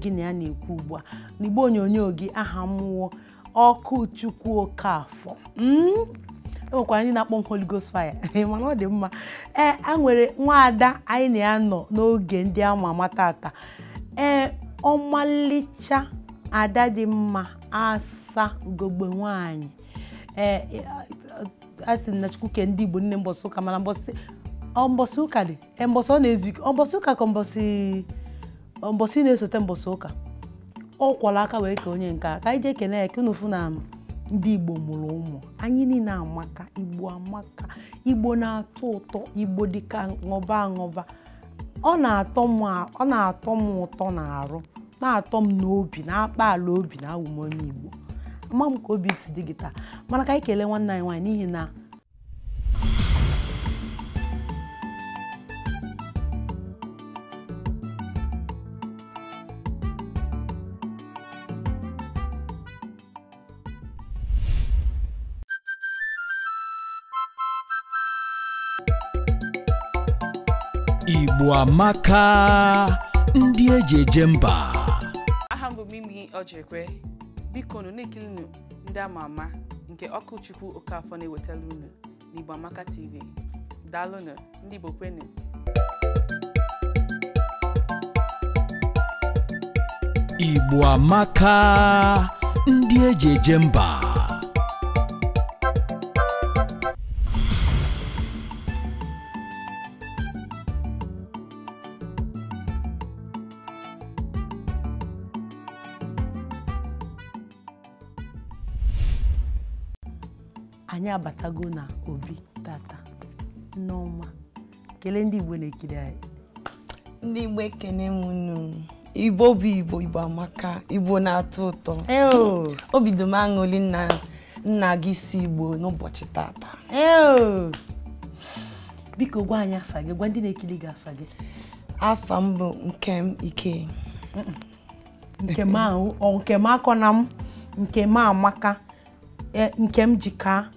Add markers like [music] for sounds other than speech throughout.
Gịnị a na-ekwu ugbu a n'igbo onyonyo gị aha mmụọ ọkụ chukwu okafọ hmm? enwekwara anyị na-akpọ Holigos fire [laughs] mana ọ dị mma ee a e nwere nwaada anyị na ya nọ n'oge ndị ama ama tata ee ọmalịcha ada dị mma asa ugogbe nwanyị ee a na Chukwu kee ndị Igbo nne mbọsị ụka mana ọ mbọsị ụka dị e, mbọsị ọ na-ezu ike mbọsị ụka ka mbọsị mbọsị na-esote mbọsị ụka ọ kwọrọ aka wee ka onye nke ka anyị jee kene ya kenu na ndị igbo mụrụ ụmụ anyị niile amaka igbo amaka igbo na-atọ ụtọ igbo dịka ṅụba aṅụba ọ na-atọ m ụtọ na arụ na-atọ m n'obi na-akpa ala obi na awụm igbo ama m ka obi si dị gị taa mana ka anyị kelee nwanne anyị nwaanyị n'ihi na amaka ndị eji eje mba aha mgbe bụ Mimi Ojekwe biko nụ na a ma ndị ama ama nke Ọkụchukwu Okafọ na-ewetara unu n'Igbo Amaka TV daalụnụ ndị Igbo kwenu Igbo amaka ndị eji eje mba abatago na obi tata n'ọma kelee ndị igbo na-ekiri anyị ndị igbo ekene m unu igbo bụ igbo igbo amaka igbo na-atọ ụtọ obi dị m aṅụli nna nna gị si igbo n'ụbọchị tata biko gwa anyị afa gị gwa ndị na-ekiri gị afa gị afa m bụ Nkem Ike Nkem akọ na m Nkem Amaka e, Nkem Jika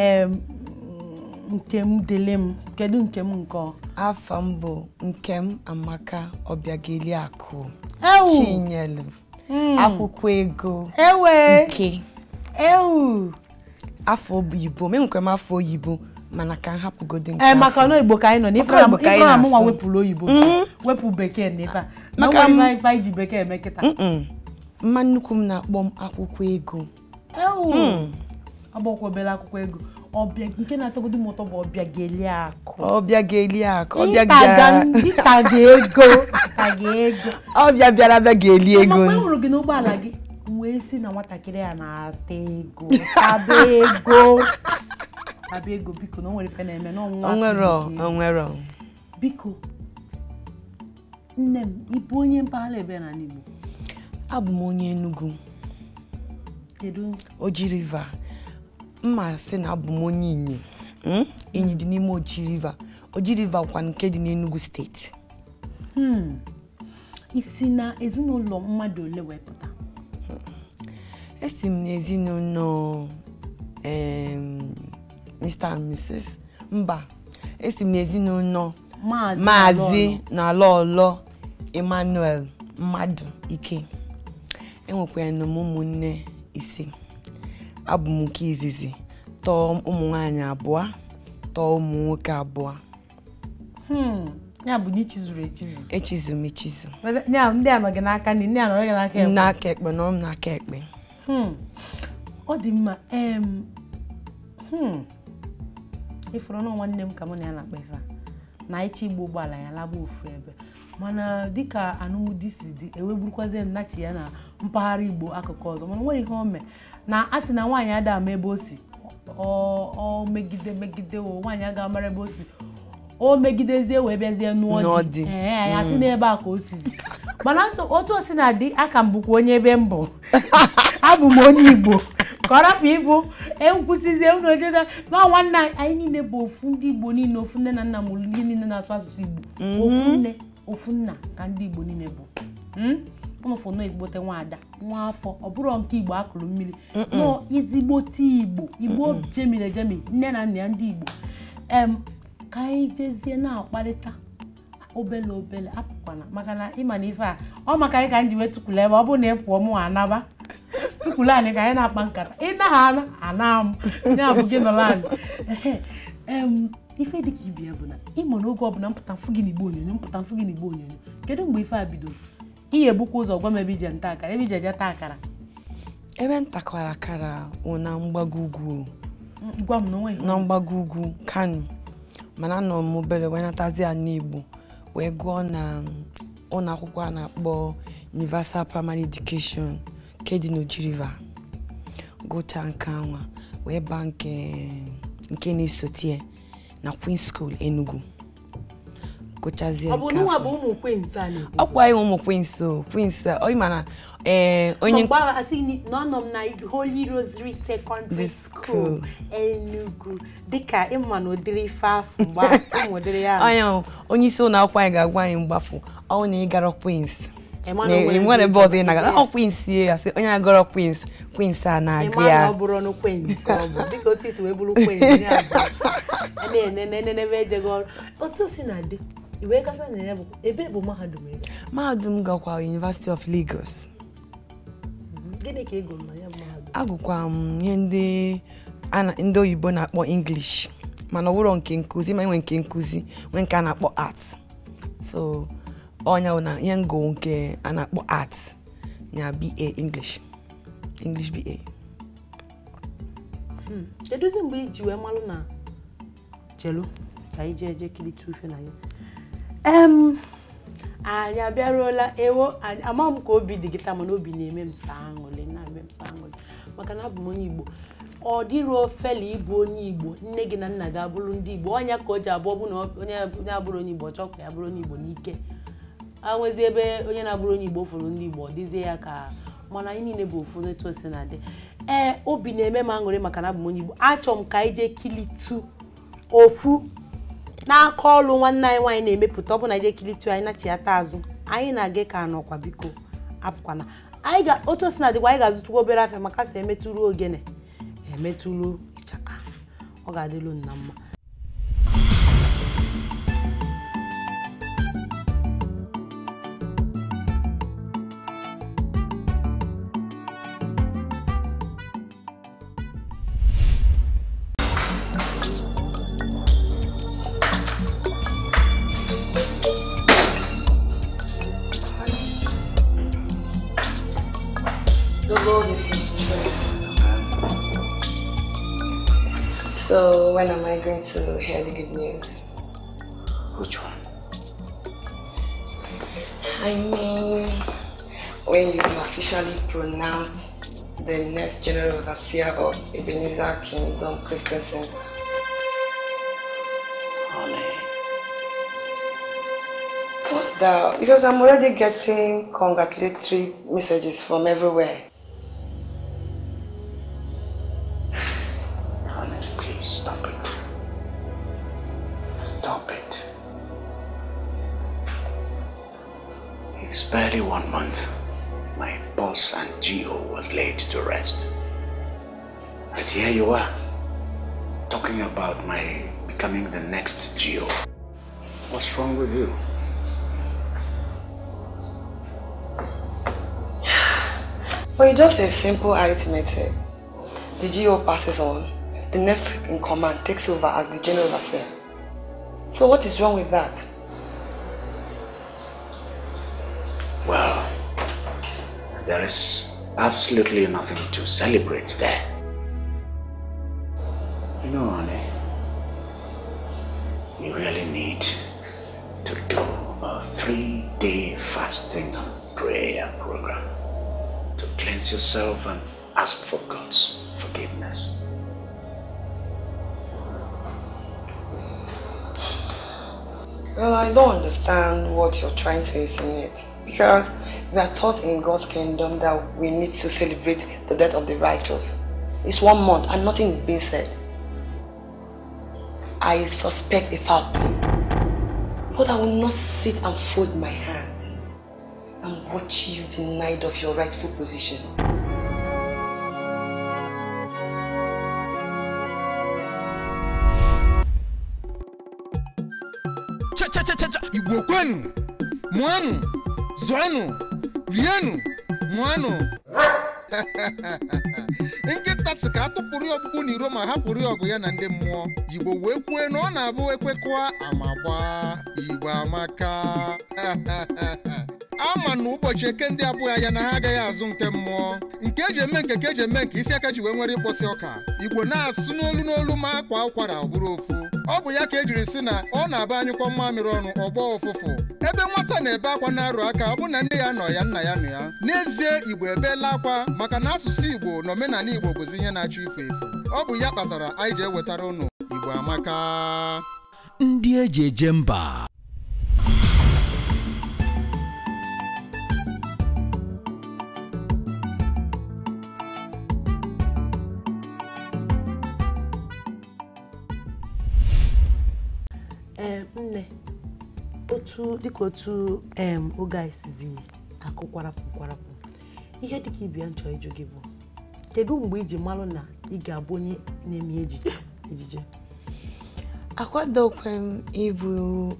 ee nke m dele m kedu nke m nke afọ m bụ Nkem Amaka ọbịageli Obiageliakụ Chinyelu hmm. akwụkwọ ego nke afọ oyibo menwekwa m afọ oyibo mana ka m hapụgodi nke eh, maka na oyibo ka anyị nọ n'ife na mụnwa wepụrụ oyibo mm-hmm. wepụ bekee na ife a ife iji bekee eme kịta mma nnukwu m na-akpọ m akwụkwọ ego mm. agbọkwebela akwụkwọ ego nke na-atọgodu m ụtọ bụ ọbịageli akụ ọbịageli akụ ịtaga ego ịtaga ego ọbịa bịara abịa ga-eli ego mgbe hụrụ e gị n'ụgbọala gị wee si na nwatakịrị a na-ata ego taba ego taba ego biko na o nwere ife na-eme n'ọnwụnwa biko nne m ịbụ onye mpaghara ebe n'ala Igbo abụ m onye Enugu Oji River mma sị na abụ m onye inyi hmm? inyi dị n'ime oji river oji river kwa nke dị n'enugu steeti hmm. isi na ezinụlọ mmadụ ole pụta. Hmm. esi m n'ezinụlọ Mr and Mrs mba esi m n'ezinụlọ maazị na alọlọ Emmanuel mmadụ ike enwekwara m ụmụnne ise abụ m nke izizi tọọ ụmụ nwaanyị abụọ tọọ ụmụ nwoke abụọ hmm, ya bụ echizu echizu ndị n'aka ndị ndị n'aka ekpe n'aka ekpe n'aka ekpe hmm, ọ dị mma hmm, ịfụrụ na nwanne m ka mụ na ya na-akpa ife na ịchọ igba ụgbọala ya laba ofu ebe mana dịka anụmdi si dị ewegburukwazie nnachi ya na mpaghara igbo akụkụ ọzọ mana nwere ihe o na a sị na nwaanyị ada ama ebe o si ọ megide megide o nwaanyị aga amara ebe o si o megidezie wee bịazie n'ụọ dị ee sị mm. n'ebe a ka o sizi mana otu o si na dị aka m bụkwa onye ebe m bụ [laughs] abụ m onye igbo ka ọ rapụ ịbụ ekwusizie unu ojeda ma nwanne anyị niile bụ ofu ndị igbo niile ofu nne na nna m ndị niile na-asụ asụsụ igbo mm-hmm. ofu nne ofu nna ka ndị igbo niile bụ hmm? ụnụfụ nọ ezigbote ada nwa afọ ọ bụrụ nke igbo akụrụ mmiri nọ ezigbote igbo igbo jemiri ejemi nne na nna ya ndị igbo em ka anyị jezie na-akparịta obele obele apụkwana maka na ịma na ife a ọ maka anyị ka m ji wee tụkwula ebe ọ bụrụ na ị pụọ mụ anaba [laughs] tụkwula anyị ka anyị na-akpa nkata ịnaghị ana ana m ya bụ gị nọrọ anyị ife dịka ibi ya bụ na ịmụ na ọbụla mpụta mfụ gị n'igbo onyonyo mpụta mfụ gị na n'igbo onyonyo kedu mgbe ife a bidoro ị ga-ebukwa ụzọ gwa m ebe ije nta akara ebe ije je taa akara ebe ntakwara akara na mgbago ugwu na mgbago ugwu kano mana nọ m obere wee natazi ya wee gụọ na mm, ụlọ akwụkwọ a na-akpọ universal primary education nke dị gụcha nke anwa wee baa nke mm, na-esote na queen School Enugu kụchazie ọkwa ya ụmụ kwenso kwenso ọ ma na ee onye nọ m na Holy Rosary Secondary School ịma na [laughs] ụdịrị onye isi ụlọ akwụkwọ anyị ga-agwa anyị ọnwụ na ịgara kwins nwere ebe ị na-agara ọ kwins ya sị onye kwins kwins a na ya otu si [laughs] e na wee gasị mm-hmm. na ya bụ ebe bụ mahadum ego mahadum gakwa University of Lagos gịnị ka ego na ya mahadum agụkwa m ihe ndị oyibo na-akpọ English mana ọ nke nkụzi ma e nwe nke nkụzi nwee nke a na-akpọ art so ọnya na ihe ngụ nke a na-akpọ art na BA English English BA hmm. kedu mgbe iji wee malụ na chelu ka anyị eje kiri tufe na ya anyị abịaruola ewo ama m ka obi dị gị taa mana obi na-eme m saa aṅụrị na-eme m saa aṅụrị maka na abụ m onye Igbo ọ dịru fela ịbụ onye Igbo nne gị na nna gị abụrụ ndị Igbo ọnya ka o ji abụọ bụ na onye abụrụ onye Igbo chọọ ya bụrụ onye Igbo n'ike anwezi ebe onye na-abụrụ onye Igbo fụrụ ndị Igbo ọ dịzie ya ka mana anyị niile bụ ofu n'etu o na-adị ee obi na-eme m aṅụrị maka na abụ m onye Igbo achọ m ka anyị jee kilitu ofu n'aka ọlụ nwanne anyị nwaanyị na-emepụta ọbụna ije kilitu anyị nachiata azụ anyị na-aga ka ọkwa biko apụkwana ga otu osimiri na dịkwa anyị ga-azụtukwa obere afịa maka sị emetụrụ ogene emetụrụ ịchaka ọ ga-adịlu nna mma when am I going to hear the good news? Which one? I mean, when you officially pronounce the next general overseer of Ebenezer Kingdom Christian Center. What's that? Because I'm already getting congratulatory messages from everywhere. [sighs] Honey, please stop. barely one month, my boss and Geo was laid to rest. But here you are, talking about my becoming the next Geo. What's wrong with you? Well, it's just a simple arithmetic. The Geo passes on. The next in command takes over as the general overseer. So what is wrong with that? There is absolutely nothing to celebrate there. You know, honey, you really need to do a three-day fasting and prayer program to cleanse yourself and ask for God's forgiveness. Well, I don't understand what you're trying to insinuate. Because we are taught in God's kingdom that we need to celebrate the death of the righteous. It's one month and nothing is being said. I suspect a foul play. But I will not sit and fold my hands and watch you denied of your rightful position. chacha igbo kwenu mụanụ zuanu rienu, mụanụ nkịta si ka atụpụrụ ya ọkpụkpụ na iro ma hapụrụ ya ọgụ ya na ndị mmụọ igbo wee kwue na ọ na-abụ ekwekwa amagba igbo amaka [laughs] ama na ụbọchị eke ndị abụghị ya na ha agaghị azụ nke mmụọ nke eji eme nke ka eji eme nke isi aka ji wee nwere ịkpọsị ọka igbo na-asụ n'olu n'olu ma akwa ụkwara bụrụ ofu ọ bụ ya ka ejiri si na ọ na-aba mma mmamịrị ọnụ ọgbọ ụfụfụ ebe nwata na-ebe akwa na-arụ aka ọ bụ na nne ya nọ ya nna ya nọ ya n'ezie igbo ebeela akwa maka na asụsụ igbo na omenala igbo bụzi ihe na-achọ ife efu ọ bụ ya kpatara anyị ji ewetara ụnụ igbo amaka ndị eji eje mba dịka otu oge anyị sizi akụ kwarapụ kwarapụ ihe dịka ibi ya nchọ ịjụ gị bụ kedu mgbe iji malụ na ị ga-abụ onye na-eme ejije akwadokwe m ịbụ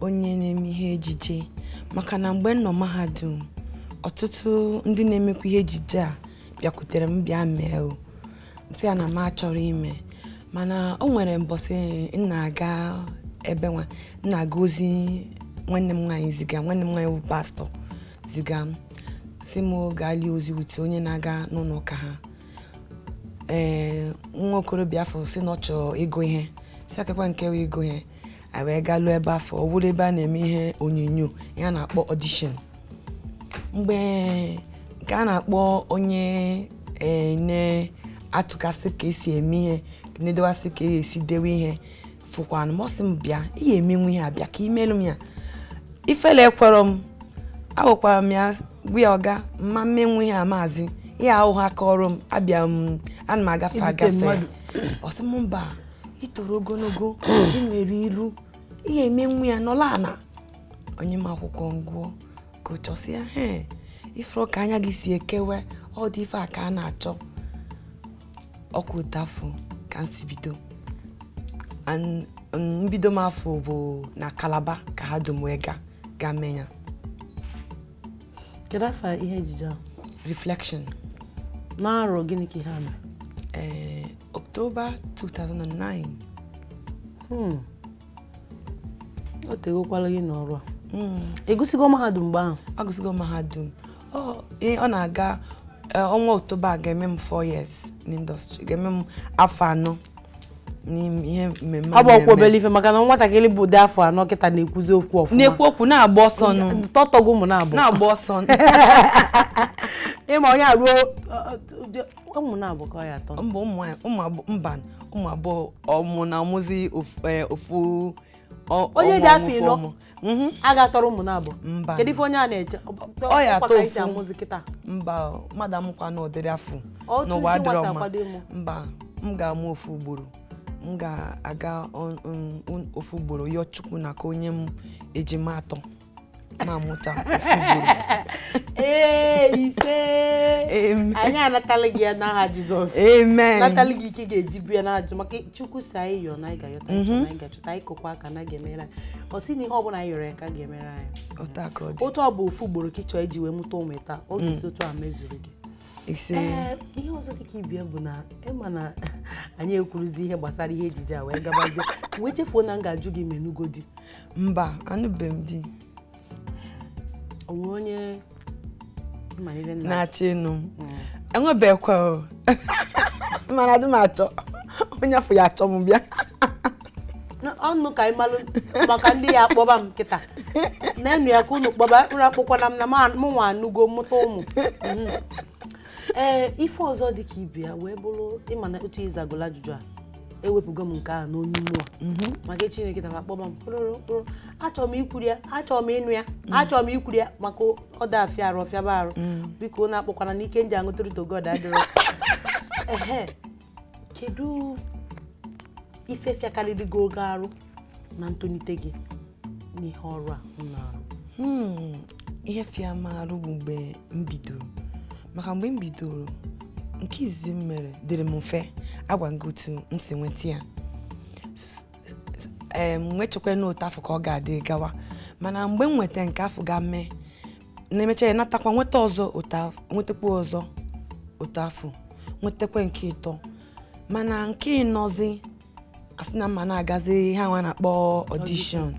onye na-eme ihe ejije maka na mgbe m nọ mahadum ọtụtụ ndị na-emekwa ihe ejije a bịakwutere m bịa mee si ya na m achọrọ ime mana o nwere mbọsị m na-aga ebe nwa m na-aga ozi nwanne m nwaanyị ziga nwanne m nwaanyị bụ pastọ ziga m si m gaa lie ozi wute onye na-aga n'ụlọ ụka ha ee nwa okorobịa afọ si na ọ chọọ ịgụ ihe si akakwa nke wee ịgụ ihe a wee gaa lụọ ebe afọ ọ bụrụ ebe a na-eme ihe onyonyo ihe a na-akpọ ọdishọn mgbe nke a na-akpọ onye na-atụkasị ka esi eme ihe na-edewasị ka esi dewe ihe fụkwanụ mọsị m bịa ị ya emenwu ihe a bịa ka imelụ m ya ifele ekwerọ m agwakwara m ya gwa ọga mma mmenwu ihe amaazị ihe ahụ ha kọrọ m abịa m ana m agafe agafe [clears throat] ọsị m mba itoro ogologo nwere iru ihe emenwu ya nọla ana onye m akwụkwọ ngụọ ka ya he ifere ka anya gị si ekewe ọ dị ife a ka a na-achọ ọkụ ụtafụ ka nsi bido mbido m afọ bụ na kalaba ka ha domwega ga mmenya kedu afọ ihe ejije a reflection n'arọ gịnị ka ihe a mere ee eh, October 2009 hmm, o tegokwala gị n'ọrụ a hmm. egosigo mahadum mgbe ahụ Agusigo mahadum ọ na-aga eh, ọnwa October ga-eme m 4 years n'indọstrị ga-eme m afọ anọ n'ihe mmemme ọ bụ ọkwa obele ife maka na nwatakịrị bụ dị afọ anọ kịta na-ekwuzi okwu ọfụma na-ekwu okwu na-agba ọsọ nụ tọtọgo ụmụ na-abụ na-agba ọsọ [laughs] ịma onye aruo ụmụ na-abụ ka ọ ya atọ mba mba ụmụ abụọ ọmụ na ọmụzi ofu e, onye dị afọ ịnọ mhm. agatọrọ ụmụ na-abụ kedu ife onye a na-eche ọ ya atọ ofu mba mmadụ amụkwa na ọdịrị afọ n'ụwa dịrọ mma mba m ga-amụ ofu ugboro m ga-aga ofu ugboro yọọ Chukwu na ka onye m ejima atọ na-amụta ofu ugboro [laughs] ee ise anyị anatala gị ya n'aha Jizọs amen natala gị ike ga-eji bu ya n'aha Jizọs maka Chukwu si anyị yọọ na anyị ga na mhm. anyị ga-achọta anyị kokwa aka na ga-emere anyị ọ sị na ihe ọbụla anyị yọrọ ya ka ga-emere anyị otu ọ bụ ofu ugboro ka ị chọọ iji wee mụta ụmụ taa oge isi otu a mezuru gị ee ihe ọzọ dịka ibie bụ na ịma na [laughs] anyị ekwuruzi ihe gbasara ihe ejije a wee gabazie wee chefuo na m ga-ajụ gị menugo di mba anụbeghị m di onwe onye na-achọ ịnụ hmm. enwebekwa [laughs] mana dị m achọ onye afọ ya achọ m bịa ọnụ ka ịmalụ maka ndị ya akpọba m kịta na-enụ ya ka unu kpọba mkpụrụ akpụkwana m na mụnwa anụgo mụta ụmụ hmm. ee eh, ife ọzọ dị ka ibe ya wee bụrụ ịma na otu ịzagụla ajụjụ a ewepụgo m nke a n'onye mmụọ mhm. maka chineke tara akpọ m kpụrụkpụrụ achọrọ m ikwuru ya achọrọ m ịnụ ya mm. achọrọ m ikwuru ya maka ọda afịa arụ ba arụ mm. biko na akpọkwana na ike nji aṅụtụrịta god adịrọ [laughs] ehe kedu ife fịakarịrịgo oge arụ na ntolite gị n'ihe ọrụ a arụ hmm, ihe fịa m bụ mgbe m bidoro maka mgbe m bidoro nke izizi m mere dịrị m mfe agwa gị otu m si nweta ya nwechekwa na nwechekwa afọ ka ọ ga-adị gawa mana mgbe m nweta nke afọ ga mee na-emecha ya natakwa nweta ọzọ nwetakwa ọzọ otu afọ nwetakwa nke ịtọ mana nke ịnọzi asị na mma na-agazi ha nwa na-akpọ ọdishọn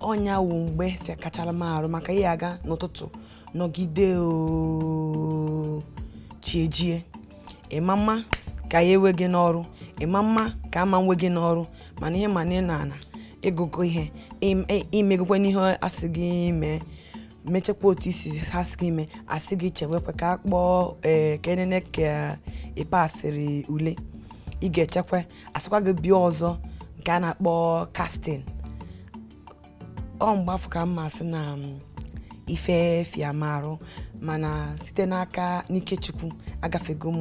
ọnya wu mgbe e kachara m arụ maka ihe aga n'ụtụtụ nọgide chiejie ịma mma ka ya enwe gị n'ọrụ ịma mma ka ama nwe gị n'ọrụ mana ihe mana ị na-ana ịgụgụ ihe imegokwe n'ihe asị gị mee mechekwa otu isi ha sị gị mee asị gị chewekwa ka a kpọọ ee ka enene ule ị ga-echekwa asịkwa gị bịa ọzọ nke a na-akpọ kastin ọ mgbe afọ ka mma asị na mm, ifefiam arụ mana site n'aka n'ikechukwu agafego m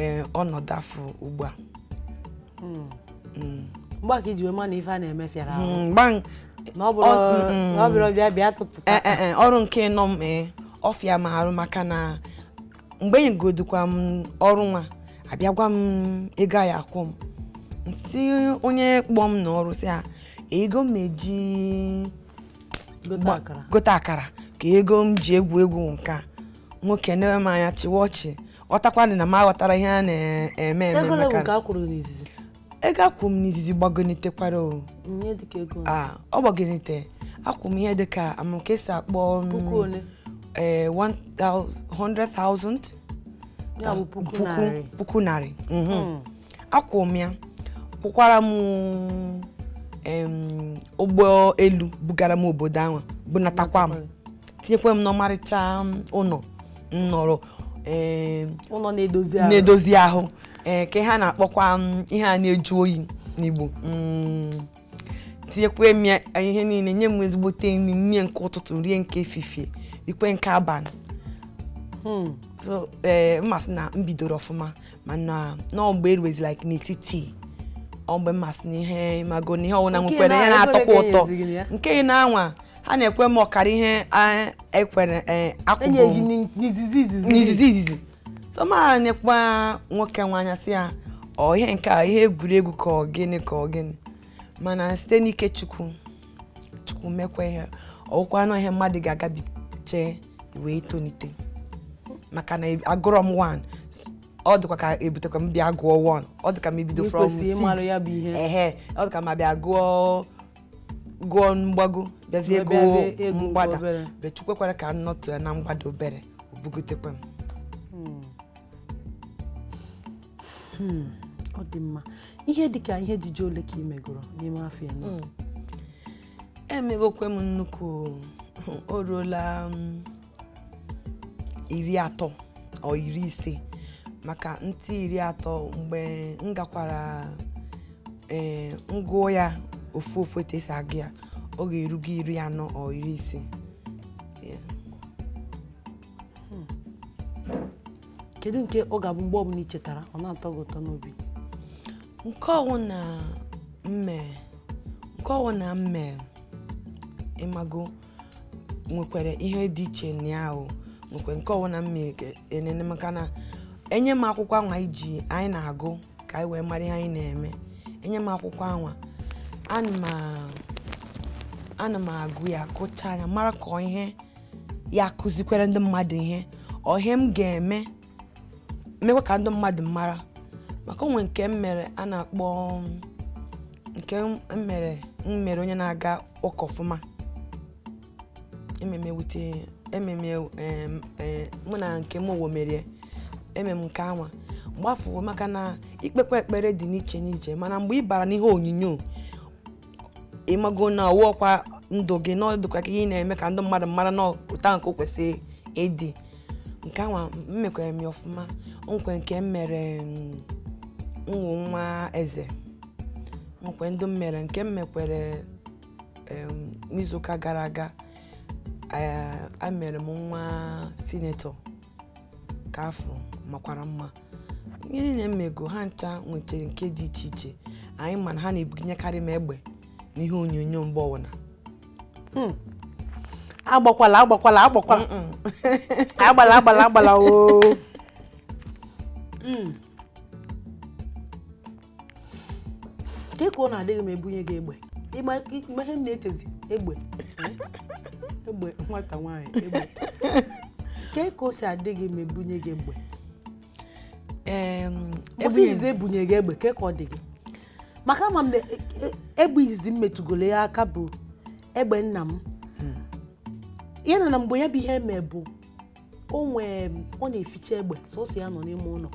eh, ọnọdụ afọ ugbu a hmm. Hmm. mgbe ka iji wee ma na ife a na-eme fịara hmm, ọrụ nke nọ m eh, ọfịa ma arụ maka na mgbe enyegodukwa m ọrụ nwa abịagwa m ego a ya akwụ m si onye kpọm m n'ọrụ si ego m eji gote akara ka ego m ji egwu egwu nke nwoke na m anya chịwa ọchị ọtakwana na m aghọtara ihe a na-eme eme ego akwụ m n'izizi gbagonitekwara ọ gbagonite akwụ m ihe dịka amụke si akpọ 100,000 e, puku narị akwụ mhm. hmm. m ya kwụkwara m ụgbọ elu bugara m obodo ahụ bunatakwa m tinyekwa m n'ọmarịcha um, ụlọ nnọrọ na-edozi ahụ ee ka ha na-akpọkwa um, ihe a na-eju oyi n'Igbo mm. tinyekwa m eh, ihe niile nye m ezigbote nri nye nke ụtụtụ rie nke efifie ikwe nke abalị hmm. ee eh, mmasị na m bidoro ọfụma mana na ọgbọ eruwezi like n'etiti ọ mgbe mmasị na ihe mago na ihe ọwụna nwekwere ihe na-atọkwa ụtọ nke ị na-anwa ha na-ekwe m ọkara ihe ekwere e, akwụgo n'izizi izizi soma na-ekwa nwoke nwanya si ya ọ ihe nke a ihe egwuregwu ka ọ gịnị ka ọ gịnị mana site n'ike chukwu chukwu mekwa ihe ọwụkwa na ihe mmadụ ga-agabiche wee tonite maka na agụrọ m 1 ọ dịkwa ka ebutekwa m bịa gụọ one, ọ dịka m ebido from 6 ehe ọ dịka ma bịa gụọ gụọ mgbago bịazie gụọ mgbada bechukwekwara ka m nọtụ ya na mgbada obere obugotekwa m hmm. hmm. ọ dị mma ihe ka ihe ejije ole ka ị megoro n'ime afọ eno hmm. emegokwe m nnukwu o ruola iri atọ ọ iri ise maka ntị iri atọ mgbe m gakwara e, ngụọ ya ofu ofu etu esi agụ ya ọ ga-erugo iri anọ ọ iri ise hmm. kedu nke ọ ga-abụ mgbe ọbụla ị ọ na-atọ gị ụtọ n'obi nke ọwụ na mme nke ọwụ na mme ịmago nwekwara ihe dị iche na ahụ nke ọwụ na mme enene maka na enye m akwụkwọ anwa iji anyị na-agụ ka anyị wee mara ihe anyị na-eme enye m akwụkwọ anwa ana m agụ ya kụcha anya mara ka ihe ya kụzikwere ndị mmadụ ihe ọhe m ga-eme mekwa ka ndị mmadụ mara maka onwe nke m mere a na-akpọ nke m mere m onye na-aga ụka ọfụma ememe wute ememe mụ na nke m owo merie eme m nke anwa mgbafuo maka na ikpekwa ekpere dị n'iche n'iche mana mgbe ị bara n'ihe onyonyo ịmago na ọkwa ndụ gị na ọdụkwa ka ị na-eme ka ndị mmadụ mara na ụta nke o kwesịrị ịdị nke anwa mmekwara m ya ọfụma nkwe nke m mere nwụ um, nwa eze nkwe ndị m mere nke m mekwere um, n'izuụka gara aga emere m nwa sinetọ ka afọ makwara mma ihe niile mmego ha ncha nwetara nke dị iche iche anyị mana ha na-ebuginyekarị m egbe n'ihe onyonyo mgbọwụna hmm. agbakwala agbakwala agbakwala [laughs] agbala agbala agbala oo nke [laughs] hmm. ka ọ na-adịghị m ebunye gị egbe ịma ihe m na-echezi egbe [laughs] egbe nwata nwaanyị egbe nke ka o si adịghị m ebunye gị egbe ozi izizi ebunyere gị egbe ke ka ọ dị gị maka ama m na e, e, egbe m metụgoro ya aka bụ egbe nna m hmm. ya na na mgbe ya bụ ihe eme bụ onwe ọ na-eficha egbe sọsọ ya nọ n'ime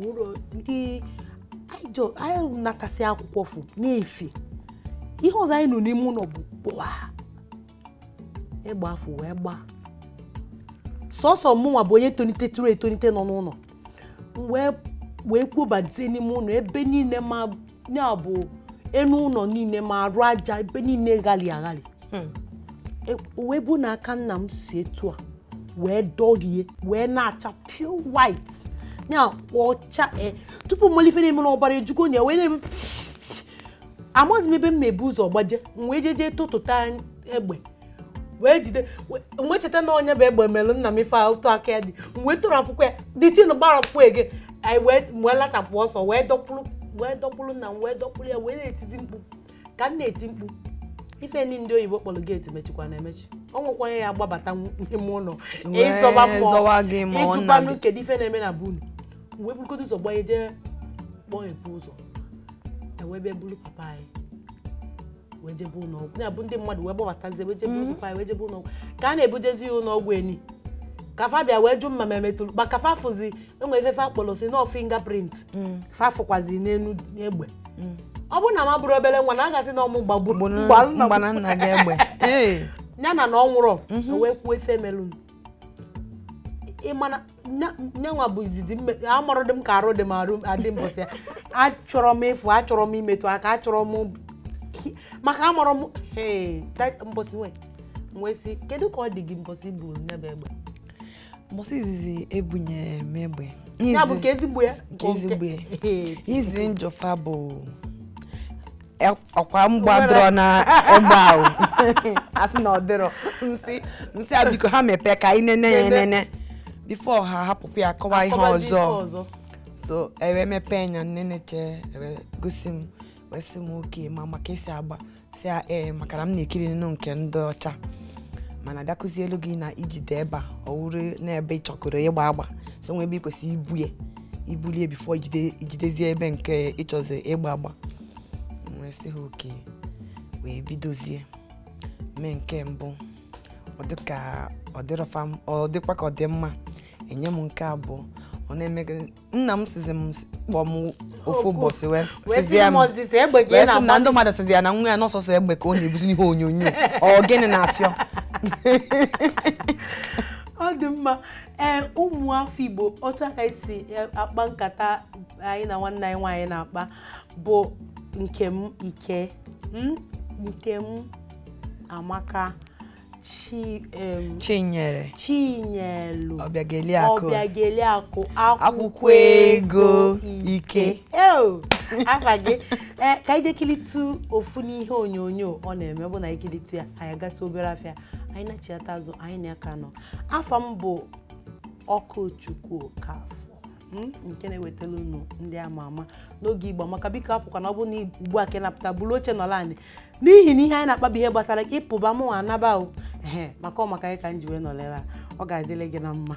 ụlọ ndị anyị natasị akwụkwọ fụ na-efi ihe ọzọ anyị nọ n'ime ụlọ bụ kpụa egbe afọ wee gbaa sọsọ mụnwa bụ onye tolitetụrụ etolite nọ n'ụlọ wee kwubadite n'ime ụlọ ebe niile ma ya bụ enu ụlọ niile ma arụ aja ebe niile ghali aghali hmm. e, wee bụ na aka nna m si etu a wee dọrie wee na-acha pure white na ọcha e, tupu mmalite na-eme na ọbara ejugo na wee na-eme amaghịzi m ebe m na-ebu ụzọ gbaje m wee jeje tụtụta egbe wee jide wee cheta na onye bụ egbe melụ nna m ife ụtọ aka ya dị wee tụrụ akwụkwọ ya dịtinu gbarapụ ege wee lachapụ ọsọ wee dọkpụrụ wee dọkpụrụ na wee dọkpụrụ ya wee na-etizi mkpu ka m na-eti mkpu ife ndị ndị oyibo kpọrọ geeti mechikwa na-emechi ọ nwekwanye ya agbabata ime ụlọ ịzọba mmụọ ịjụkwanụ kedu ife na-eme na bunu wee burugodo ụzọ gbanye jee kpọọ ebu ụzọ ewebe buru papa anyị wee jebe ụlọọgwụ ya bụ ndị mmadụ wee gbabatazie wee jebe mm. ụlọọgwụ wee jebe ụlọọgwụ ka a na-ebujezi ya ụlọọgwụ ka kafa bịa wee jụ mma ma emetụrụ ma kafa fụzi enwere ifefe akpọrọ si nọ mm. fa fafụkwazi n'elu egbe mm. ọ bụ na ma bụrụ obere nwa na a gasị na ọmụ gbagburu ya na na ọ nwụrụ mhm. wee kwuo ife melụ ịmana nyenwa bụ izizi amarụ dị m ka arụ dị m arụ adị mbọsị achọrọ m ịfụ achọrọ m imetụ aka achọrọ m maka amụrụ m mbosi wee wee kedu ka ọ dị gị mbosi bụ n'ebe egbe mbosi izizi ebunyere m egbe ya bụ ka ezigbo ya ezigbo ya [laughs] izi njọfa bụ e- ọkwa mgbadoro na [laughs] egbe ahụ asị na ọdịrọ nsi nsị a biko ha mepee ka anyị nene ya enene bifo ha hapụpụ ya kọwa ihe ọzọ so ewe mepee anya nneneche ewe gosi m wee m oke ma maka esi agba si ee maka na m na-ekiri nnu nke ndị ọcha mana elu gị na ijide ebe a na n'ebe ị ịgba agba so nwebe ị kwesịrị ibu ya ibulie bifo ijidezie ebe nke ịchọzi ịgba agba wee ha oke wee bidozie mee nke mbụ ọ dịkwa ka ọ dị mma enye m nke abụọ ọ na-eme gị nna m sizi m kpọ m ofu ụbọchị wee sị na ndị mmadụ sizi ya na nwa ya n'ọsọsọ egbe ka ọ na-ebuzi n'ihe onyonyo ọ gịnị na-afịọ [laughs] ọ dị mma ee ụmụafọ Igbo otu aka esi e, akpa nkata anyị na nwanne anyị nwaanyị na-akpa bụ nke m ike nke m amaka chi chinyere chinyelu ọbịageliakụ akwụkwọ ego ike afa gị [laughs] eh, ka anyị jekilitu ofu n'ihe onyonyo ọ na-eme bụ na ikilitu ya anyị agasị obere afịa anyị na-achiata azụ anyị na-aka nọ afọ m bụ ọkụ chukwu ka hmm? nke na-ewetara unu ndị ama ama n'oge igbo maka biko na ọ bụ na ugbu a ka napụta bụrụ oche nọla anị n'ihi na ihe anyị na-akpabi ihe gbasara ịpụba mụnwa anaba o ee maka ọ maka anyị ka m ji wee a ọ ga-adịle gị na mma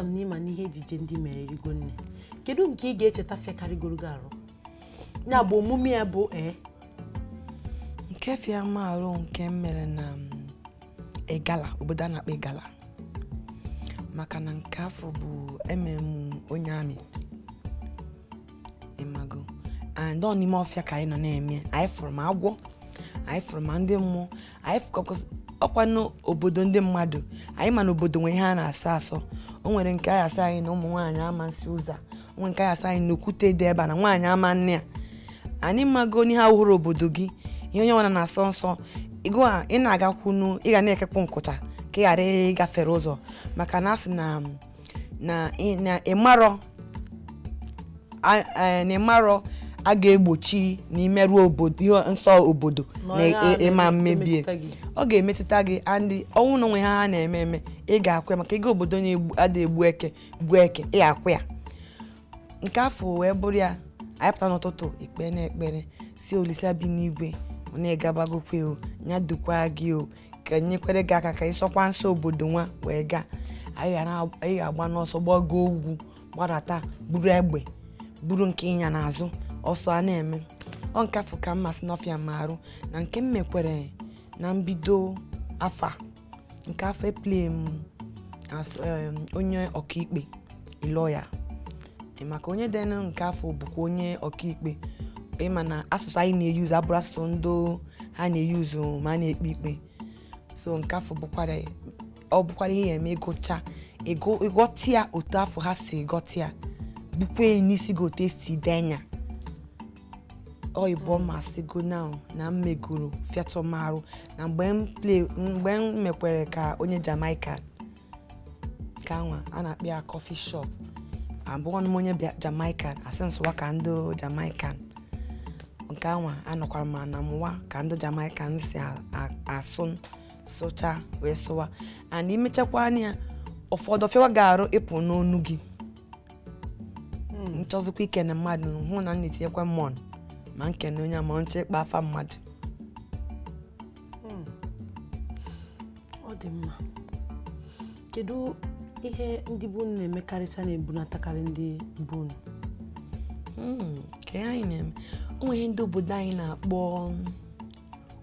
ama m na ịma n'ihe ejije ndị mere erigo nne kedu nke ị ga-echeta fekarịgoro gị arụ ya bụ omume ya bụ ee nke fiama arụ nke mere na egala obodo a na-akpọ egala maka na nke afọ bụ emem onye amị ịmago and ọ n'ime ọfịa ka anyị nọ na-eme anyị fụrụ ma agwọ anyị fụrụ ma ndị mmụọ anyị fụkọkwa ọkwa n'obodo ndị mmadụ anyị ma na obodo nwere ihe a na-asọ asọ o nwere nke asa anyị na ụmụ nwaanyị ama nsị ụzọ onwe nke asa anyị na okwute dị ebe na nwaanyị ama nne a anyị mago ha hụrụ obodo gị ihe onye nwara na-asọ nsọ ịgụ a ị na-agakwunu ị na-ekekwu nkụcha ka ị ghara ịgafere ụzọ maka na asị na ịmarọ a ga-egbochi na imerụ obodo ihe nsọ obodo na e-, ịma mmebi ọ ga-emetụta gị andị ọnwụ na onwe ha ha na-eme eme ị ga akwa ya maka ego obodo na-ada egbu eke gbuo eke ị ga ya nke afọ wee bụrụ ya anyị n'ụtụtụ ikpe na ekpere si olisa bi n'igwe na-egabagokwe o nya dukwa gị o ka nyekwere gị aka ka ị sọkwa nsọ obodo nwa wee gaa anyị ga-agba n'ọsọ gbago ugwu gbadata buru egbe buru nke ịnya n'azụ ọsọ a na-eme ọ nke afọ ka mmasị n'ọfịa ma arụ na nke m mekwere na mbido afọ a nke afọ eplie m onye ọkaikpe lọya maka onye dị nke afọ bụkwa onye ọkaikpe ịma na asụsụ anyị na-eyuzu abụrụ asụsụ ndo ha na-eyuzu ma a na-ekpe ikpe so nke afọ ọ bụkwara ihe eme ịgụcha ịgụtịa otu afọ ha si gọtịa bụkwa n'isi gote si e denya oyibo masigo now na m megoro fiatomaru na mgbe m mekwere ka onye jamaica ka a na-akpọ ya shop abụọ na onye jamaican asị m sụwa ka ndị jamaican nke anwa anọkwara m na mụwa ka ndị jamaican si asụ sụcha wee sụwa and imechakwa anya ụfọdụ ọfịawa ga-arụ ịpụ n'onu gị nchọzikwa hmm. ike na mmadụ hụ na m na-etinyekwa mmụọ ma na onye ma nche ịkpa mmadụ hmm. ọ dị mma kedu ihe ndị bụ na-emekarịcha na-ebunatakarị ndị bụ hmm, nke anyị na-eme o ndị obodo anyị na-akpọ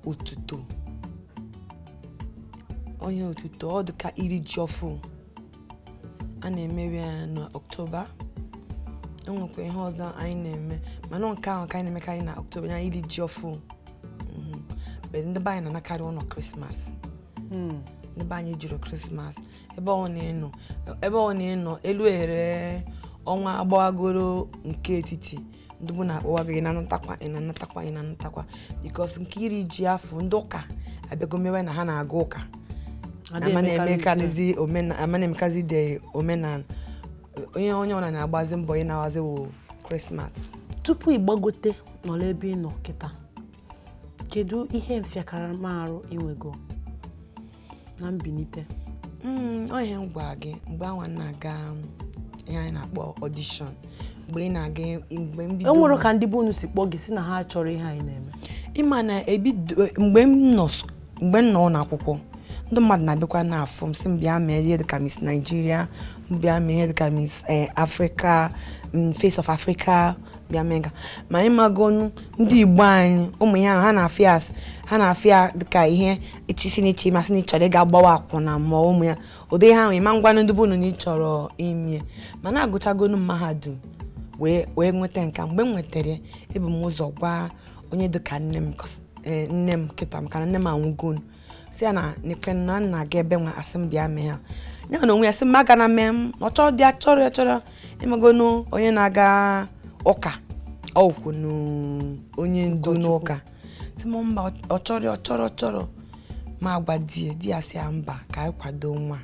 otuto onye otuto ọ ka iri ji a na-emewe ya n'ọktoba enwekwa ihe ọzọ anyị na-eme mana nke ahụ ka anyị na-emekarị na oktoba anyị iri ji ọfụ mhm. ndị be anyị na-anakarị ụlọ krismas hmm. ndị be anyị jụrụ krismas ebe ọ na-enọ elu eghere ọnwa agbawagoro nke etiti ndị na-akpọwago ị na-anatakwa ị na-anatakwa ị na-anatakwa bikos nke iri ji afọ ndị ụka abịago mewe na ha na-aga ụka ama na-emekazi de omenala onye onye ọra na-agbazi mbọ ị na-awazi wụ krismas tupu ịgbagote nọrọ ebe ị nọ kịta kedu ihe mfịakaramarụ inwego na mbilite hmm, onye m gwa gị mgbe anwa na-aga ihe anyị na-akpọ ọdishọn mgbe ị na-aga mgbe mbido enwere ka ndị be si kpọọ gị si na ha chọrọ ihe anyị na-eme ịma na ebido mgbe m nọ n'akwụkwọ ndị mmadụ na-abịakwa n'afọ m si m bịa mee ihe dịka Miss Nigeria m bịa mee ihe dịka Miss eh, Africa Face of Africa bịa mee ga ma anyị magonu ndị Igbo anyị ụmụ ya ha na-afịa ha na-afịa dịka ihe ichisi na iche masị na ịchọrọ ịga gbawa akwụna ma ụmụ ya ụdị ha nwee ma ngwanụ ndị bụnụ na ịchọrọ ma na agụchagonu mahadum wee nweta nka mgbe m nwetara ebu m ụzọ gwa onye dịka nne m eh, nne m kịta m ka nne m anwụgonu si ya na nekwe na nna ga ebe nwa asị m bịa mee ya ya na onwe ya sị m aga na mee m ọ chọọ dị achọrọ ya chọrọ ịmagonu e onye na-aga ụka ọkwụ onye ndu n'ụka si m mba ọ chọrọ ọ chọrọ chọrọ ma gwa di e, di ya si ya mba ka e anyị nwa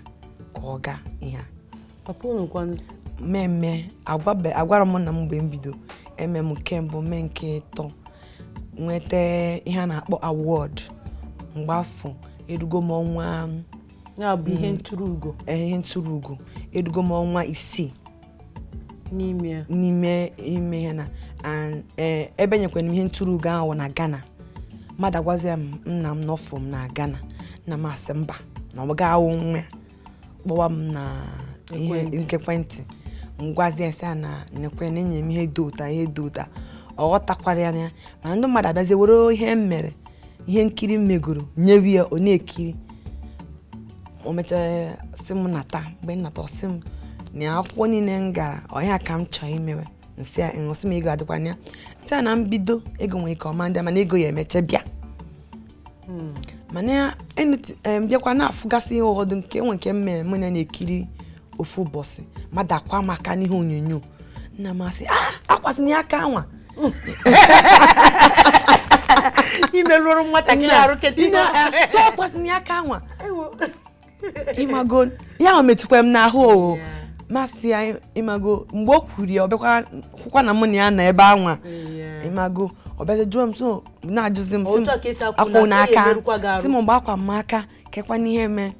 ka ọ gaa ihe a mmemme agwara m na m mgbe m bido eme m nke mbụ mee nke ịtọ nweta ihe a na-akpọ awọd mgbe afọ edugo m ọnwa um, ya bụ ihe mm, ntụrụugo eh, ihe edugo m ọnwa isii n'ime ime ihe na eh, ebe nyekwara m ihe ugo ahụ na Ghana mmadụ agwazi ya nna m n'ọfụ m na Ghana na masị mba na ọ ga-awụ kpọwa m na ihe nkekwentị ngwazie sị na nekwe na enye m ihe dị ụta ihe dị ụta ọ ghọtakwara ya na mana ndị mmadụ abịazi were ihe m mere ihe nkiri megoro nyewe ya ọ na-ekiri o mechara sị m nata mgbe nnata ọsị m na akwụkwọ niile m gara ọhịa ka m chọọ imewe nsị a ṅụsị m ego adịkwana ya nsị a na mbido ego nwere ike ọma ndị mana ego ya emecha bịa mana bịakwa na-afụgasị ihe ụfọdụ nke nwe nke mmemme mụ na na-ekiri ofu ụbọchị mmadụ akwa maka n'ihe onyonyo nna m asị akwasị ah, na ya aka nwa [laughs] imerụrụ nwatakịrị arụ tụọkwasịna ya aka nwa ịmago [laughs] ya ma metụkwa m n'ahụ oo masị ya ịmago mgbe o kwuru ya ọ bịakwakwa na mụ na ya nọ ebe anwa ịmago ọ bịazi jụọ m so oh, na-ajụzi m akwụ n'aka si m mgbe akwa m aka kekwa n'ihe mee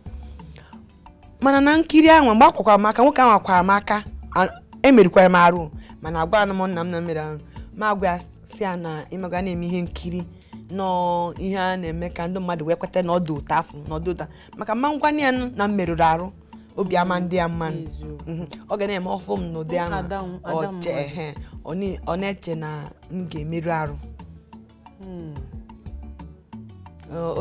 mana na nkiri anwa mgbe akwakwa m aka nwoke anwa akwara m aka emerikwara m arụ mana agwara m nna m na mmeri ahụ ma agwa ya si ya na ịmaga na-eme ihe nkiri nọọ ihe a na-eme ka ndị mmadụ wee kweta na ọdụ ụta afọ na ọdụ ụta maka mma ngwa ya na mmerụrụ arụ obi ama ndị ya mma mhm. ọ ga na-eme ọfụ m n'ụdị ahụ ọ na-eche na m ga-emerụ arụ hmm.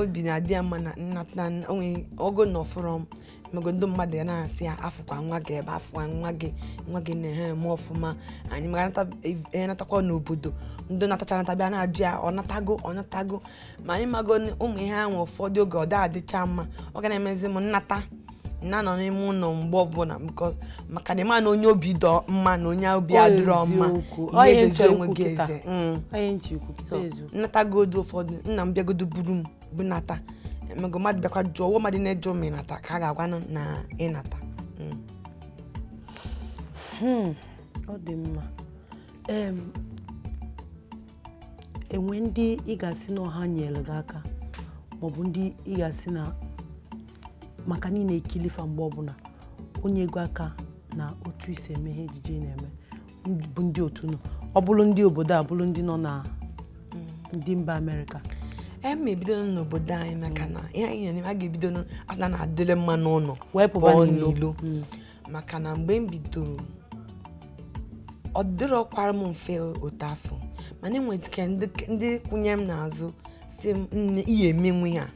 obi na-adị ya mma na nnata onwe ogo na ọfụrọ m mego ndị mmadụ ya na-asị ya afụkwa nwa gị ebe afụkwa nwa gị nwa gị na eme ọfụma anyị mara e, e, natakwa n'obodo ndị natachara natabịa na-ajụ ya ọ natago ọ natago ma anyị mago ụmụ ihe ahụ ụfọdụ oge ọ da-adịcha mma ọ ga na-emezi m nnata na nọ n'ime ụlọ mgbe ọbụla maka na ịma na onye obi dọ mma na onye obi adịrọ mma mm. mm. nnatagodu ụfọdụ nna m bịagodo buru m nata mego mmadụ bịakwa jụọ ụwa mmadụ na-eje m ịnata ka a ga-agwa na ịnata mm. hmm. ọ dị mma enwe ndị ị ga-asị na ọha nyere gị aka ma ọ bụ ndị ị ga-asị na maka niile ekilifa mgbe ọbụla onye ego aka na otu isi eme ihe ejije na-eme bụ ndị otu nọ ọ bụrụ ndị obodo a bụrụ ndị nọ na ndị mba amerịka eme ebidola n'obodo anyị maka na ihe anyị na-eme a ga-ebido afta na-adịle mma n'ụlọ pụọ n'ilo hmm. maka na mgbe m bidoro ọ dịrọkwara m mfe otu afọ mana enwetike ndị kwụnye m n'azụ si m nne ga-emenwu ihe a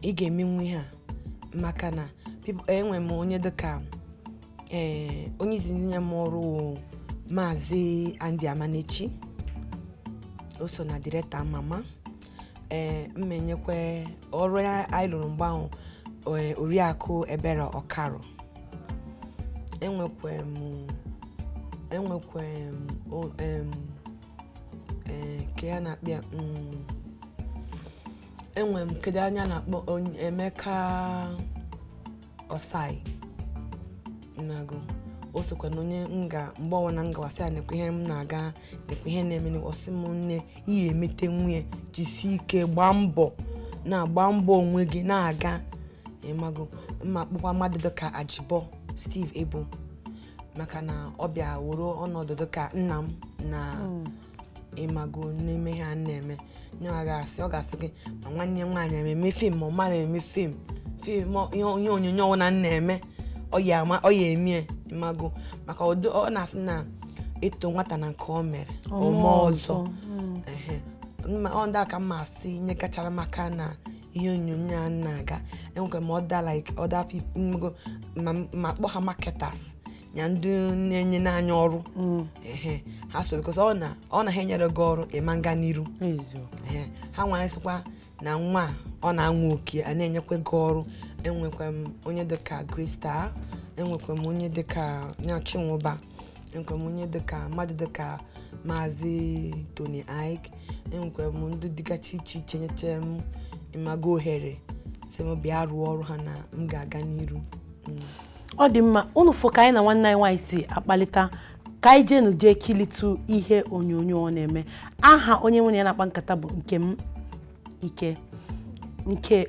ị ga-emenwu maka na e, enwe m onye dịka ee onye izi nye m ọrụ maazị Andy Amanechi o so na direkta mama ee mmenyekwe ọrụ anyị lụrụ mgbe ahụ e, oriakụ ebere ọkarụ enwekwe m enwekwe m nke eh, ya na-akpị mm, enwe m kedu anya na-akpọ Emeka Osai nago o sokwa na onye nga mgbe ọnwa na ngawasị ya nekwa ihe m na-aga nekwa ihe na-eme n'ọsị m nne ihe emete nwunye jisie ike gbaa mbọ na-agba mbọ onwe gị na-aga ịmago mma akpụkwa mmadụ dịka ajibọ Steve Ebo maka na ọ bịa wuru ọnọdụ dịka nna m na mm. ịmago n'ime ha na-eme asị ọ ga-asị gị ma nwanne nwaanyị eme fim ma ọ mara eme fim fim ihe onyonyo ọbụla m na-eme ọ ya emie ịmago maka ọ na-asị na ịtụ nwata na nke ọ mere ome ọzọ ndị aka mma asị ihe kachara maka na ihe onyonyo a na-aga enwekwa ma ọ da like other people ma kpọ ha marketers na ndị na-enye n'anya ọrụ mm. ha soro kọsọ ọ na ha enyere gị ọrụ ịma nga n'iru ha sịkwa na nwa ọ na-anwụ oke a na-enyekwa gị ọrụ enwekwa m onye dịka krista enwekwa m onye dịka nyachinwụba enwekwa m onye dịka mmadụ dịka maazị tony ik enwekwa m ndị dịgachi iche iche nyechaa m ịmago ohere si m bịa rụọ ọrụ ha na m ga-aga n'iru mm. ọ dị mma unu fụ ka anyị na nwanne anyị nwanyị si akpalịta ka anyị jenu jee kilitu ihe onyonyo ọ na-eme aha onye nwere ya na-akpa nkata bụ m Ike nke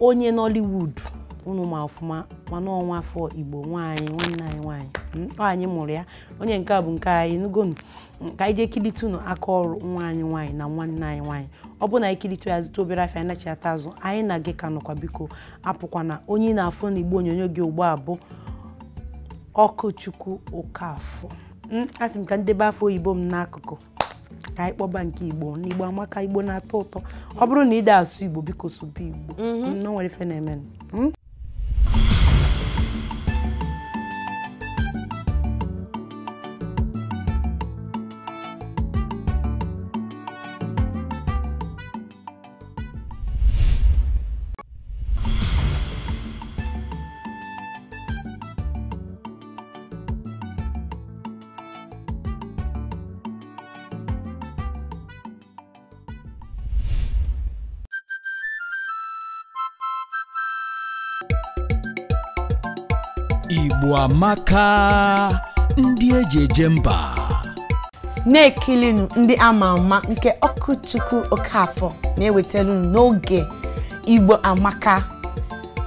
onye Nollywood unu ma ọfụma mana ọnwa afọ Igbo nwanyị nwanne anyị hmm? ọ anyị mụrụ ya onye nke a bụ nke anyị nugonu hmm, ka anyị jee kilite aka ọrụ nwa anyị nwaanyị na nwanne anyị nwaanyị ọ bụrụ na anyị kilitu ya zụta obere afịa anachi ata azụ anyị na gị ka nọkwa biko apụkwa na onye ị na-afụ na Igbo onyonyo gị ugbo abụ ọkụchukwu okafọ hmm, asị m ka ndebe afọ oyibo m n'akụkụ ka anyị kpọba nke igbo n'igbo amaka igbo na-atọ ụtọ ọ bụrụ na ị da asụ igbo biko sụba igbo mhm. hmm, o nwere ife na-eme hmm? Igbo amaka ndị eji eje mba na-ekilinu ndị ama ama nke Ọkụchukwu Okafọ na-ewetara unu n'oge Igbo amaka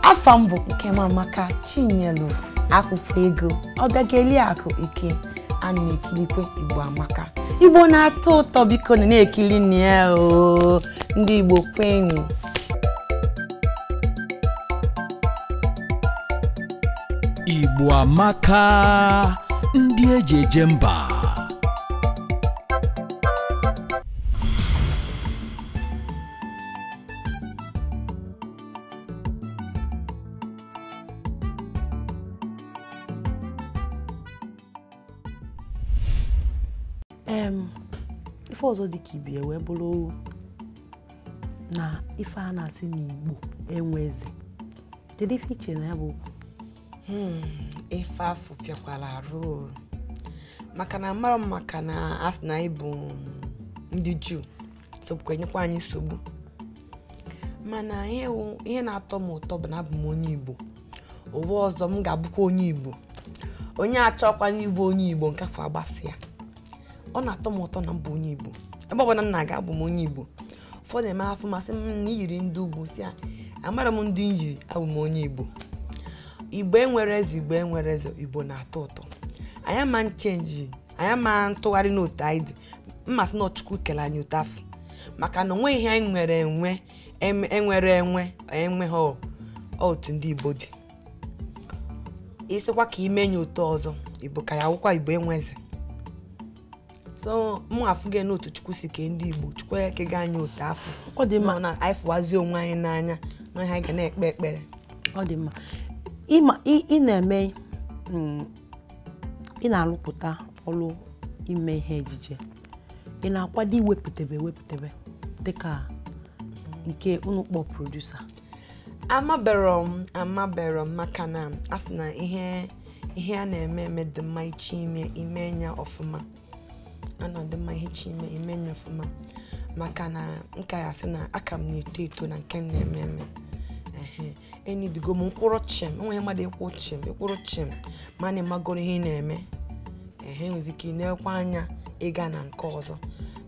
afọ mbụ nke m amaka Chinyelu akwụkwọ ego akụ ike a na-ekilikwe Igbo amaka Igbo na-atọ ụtọ biko na na-ekili ndị Igbo kwenụ Igbo amaka ndị eji eje mba em ife ọzọ dị ka ibi e wee bụrụ na ife a na-asị n'Igbo enwe eze kedu ife iche na ya bụ Hmm. ife afụ fịakwara arụ maka na mara m maka na asị na anyị bụ ndị juu sokwa enyekwa anyị nsogbu mana ihe na-atọ m ụtọ bụ na abụ m onye igbo ụwa ọzọ m ga-abụkwa onye igbo onye achọkwa n'ibụ onye igbo nke afọ agbasịa ọ na-atọ m ụtọ na mbụ onye igbo ebe ọbụla m na-aga abụ m onye igbo ụfọdụ eme afọ masị m na iyiri ndị ugwu si a amara m ndị m yiri abụ m onye igbo igbo enwere eze igbo enwere eze igbo na-atọ ụtọ anyị ama nchenji anyị ama ntụgharị n'otu anyị dị mmasị na ọchukwu kele anyị ụtọ afọ maka na onweghị ihe anyị nwere enwe enwere e enwe enwe ha otu ndị igbo dị isikwa ka ime nye ụtọ ọzọ igbo ka ya awụkwa igbo enweze so mụ afụghị n'otu chukwu si kee ndị igbo chukwu ekega anyị ụtọ afọ ọ dị mma na anyị fụwazie onwe anyị n'anya na ihe anyị ga na-ekpe ekpere ọ dị mma Ịma mm, ị na-eme ị na-arụpụta ọrụ ime ihe ejije ị na-akwado iwepụtebe ewepụtebe dịka nke unu kpọ produsa amabero m amabero m maka na a sị na ihe ihe a na-eme eme dị mma ichi ime ime nya ọfụma a na dị mma ihe ime ime nya ọfụma maka na nka ya sị na aka m na-eto eto na nke m na-eme eme enidigo m mkpụrụ chim enweghị mmadụ ịkwụ chim ịkwụrụ chim ma e na ịmagoro ihe ị na-eme ehe nwere ike ịnekwa anya ịga na nke ọzọ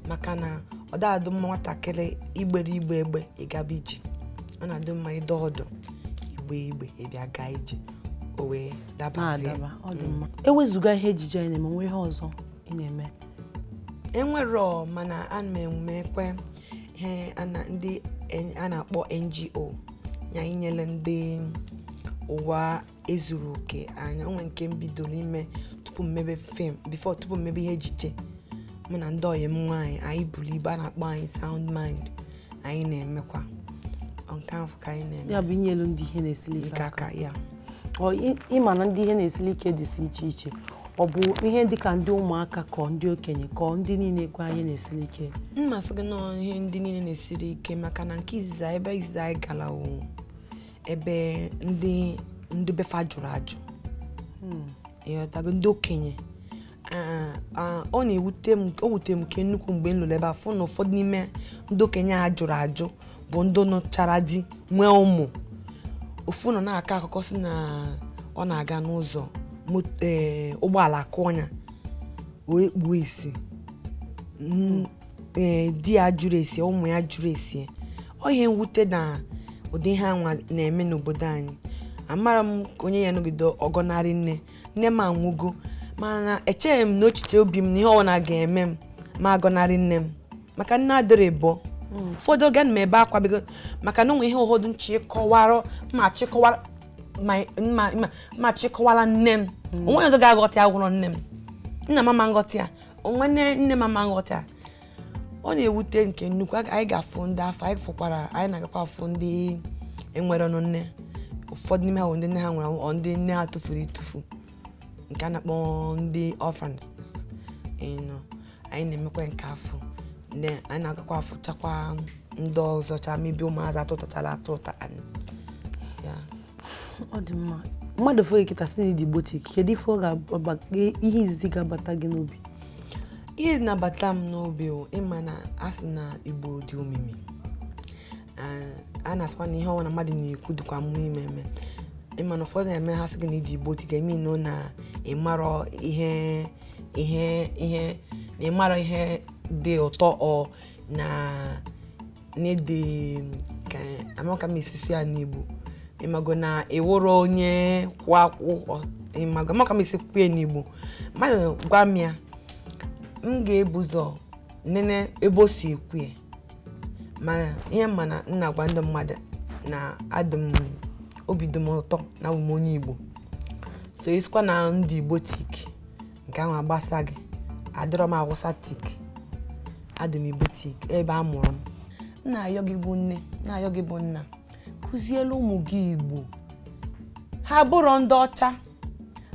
maka na ọ dadụ mma nwatakịrị igbere igbe egbe ịgaba e ije ọ na-adị mma ịdọ e ọdụ igbe igbe ịbịa gaa ije o wee dabazie ah, mm. ewezụga ihe ejije anyị na-eme nwe ihe ọzọ ị na-eme enwere mana a na kwe ihe ndị a na-akpọ NGO ya inyele ndị ụwa ezuru oke anya onwe nke m bidoro tupu mmebe fim bifo tupu mmebe ihe ejije mụ na ndị ọyị m nwaanyị anyị buru ibe a na-akpọ anyị sound mind anyị na-emekwa nke ka anyị na-eme ya bụ ndị ihe na-esili ike aka ya ịma na ndị ihe na-esili ike dịsi iche iche ọ bụ ihe dịka ndị ụmụaka kọ ndị okenye kọọ ndị niile kwa anyị na-esiri ike mmasị gị nọọ ihe ndị niile na-esiri ike maka na nke izizi ebe izizi anyị gara ebe ndị ndị befa jụrụ ajụ hmm. ndị okenye ọ na-ewute m o wute m nke nnukwu mgbe m ebe a na ụfọdụ n'ime ndị okenye a jụrụ ajụ bụ ndị nụchara di nwee ụmụ ofu nọ na-akọ akụkọ si na ọ na-aga n'ụzọ Eh, ụgbọala kụọ ya wee kpuo isi mm, eh, di ya jụrụ esi ụmụ ya jụrụ esi ọ ihe mwute na ụdị ihe anwa na-eme n'obodo anyị amara m onye ya nọgide ọgọnarị nne nne m anwụgo mana echeghị m n'echiche obi m na ihe ọbụla ga-eme m ma agọnarị nne m maka nne adịrị bụọ mm. ụfọdụ oge na m ebe akwa bigo maka na onwe ihe ụfọdụ nchịkọwara mma chịkọwara nne m onwe ọzọ ga-aghọta agwụrọ nne m nna m ama nghọta a onwe nne m ama nghọta ọ na-ewute nke nnukwu anyị ga-afụ ndị afọ anyị fụkwara anyị na-agakwa afụ ndị enwere ọnụ nne ụfọdụ n'ime ha bụ ndị nne ha nwere anwụ ndị nne ha tụfuru ịtụfu nke a na-akpọ ndị orphans anyị na-emekwa nke afọ anyị na-agakwa chakwa ndị ọzọcha mebe ụmụazị atụtachala atụ ụta ọ dị mma mmadụ fere kịta si na idigbotik kedu ife ihe izizi ga-abata gị n'obi ihe na-abata m n'obi ịma na asị na igbo dị omimi a na-asịkwa na ihe ọnwa na mmadụ na-ekwu dịkwa mmụọ ime eme ịma na ụfọdụ na-eme ha sị gị na ịdị igbotik eme nọ na ịmarọ ihe ihe ihe na ịmarọ ihe dị ụtọ ọ na na-ede ka amaka m esisi ya n'igbo ịmago na eworo onye kwa akwụkwọ ịmago maka m isi kwukwe n'igbo mmadụ gwa m ya m ga-ebu ụzọ nene ebe o si ekwu ya mana ihe mana m na-agwa ndị mmadụ na adị m obi dị m ụtọ na abụ m onye igbo so isikwa na ndị igbo tik nke ahụ agbasa gị adịrọ m awụsa tik adị m igbo tik ebe a mụrụ m m na-ayọ gị bụ nne na-ayọ gị bụ nna akụziela ụmụ gị Igbo ha bụrụ ndị ọcha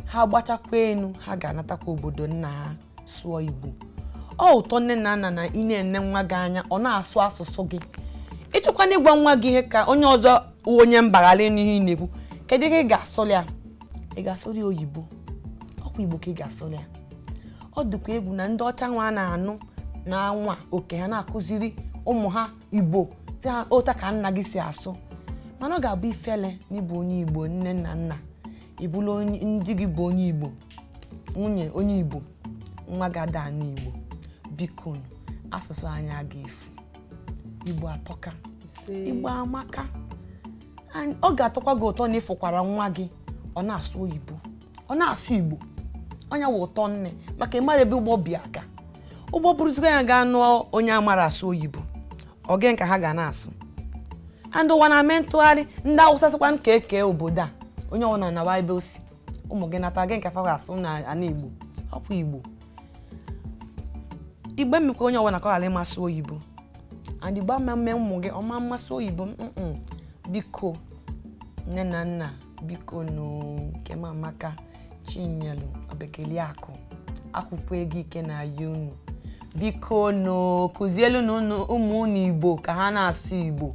ha gbachakwa enu ha ga-anatakwa obodo nna ha sụọ Igbo ọ ụtọ nne na nna na ị na-ene nwa gị anya ọ na-asụ asụsụ gị ịchọkwana ịgwa nwa gị ihe ka onye ọzọ onye mbagharị n'ihe ị na-ekwu kedu ihe ị ga-asụrụ ya ị ga-asụrụ oyibo ọkwa Igbo ka ị ga-asụrụ ya ọ dịkwa egwu na ndị ọcha nwa a na-anụ na nwa oke ha na-akụziri ụmụ ha Igbo otu ka nna gị si asụ mana ọ ga-abụ ifele na ịbụ onye igbo nne na nna ịbụla ndị gị bụ onye igbo nwunye onye igbo nwa gị ada n'igbo biko asụsụ anyị aga efu igbo atọka igbo amaka ọ ga-atọkwa gị ụtọ na ịfụkwara nwa gị ọ na-asụ oyibo ọ na-asụ igbo onye wụ ụtọ nne maka ịmara ebe ụgbọ bi aga ụgbọ bụrụzikwa ya gaa nụọ onye amara asụ oyibo ọ gị ka ha ga na-asụ ndị ụwa na-eme ntụgharị ndị awụsa sịkwa nke ka e obodo a onye ọbụla na nawa ebe osi ụmụ gị nata gị nke afọ asụ na ana igbo hapụ igbo igbe mmekwa onye ọbụla ka ọ ghara ịmasị oyibo and igbo ama ụmụ gị ọma mmasị oyibo biko nne na nna biko nkemamaka chinyelu obekeliakụ akwụkwọ ego ike na-aya unu biko nụ kụzielu na ụmụ unu igbo ka ha na-asụ igbo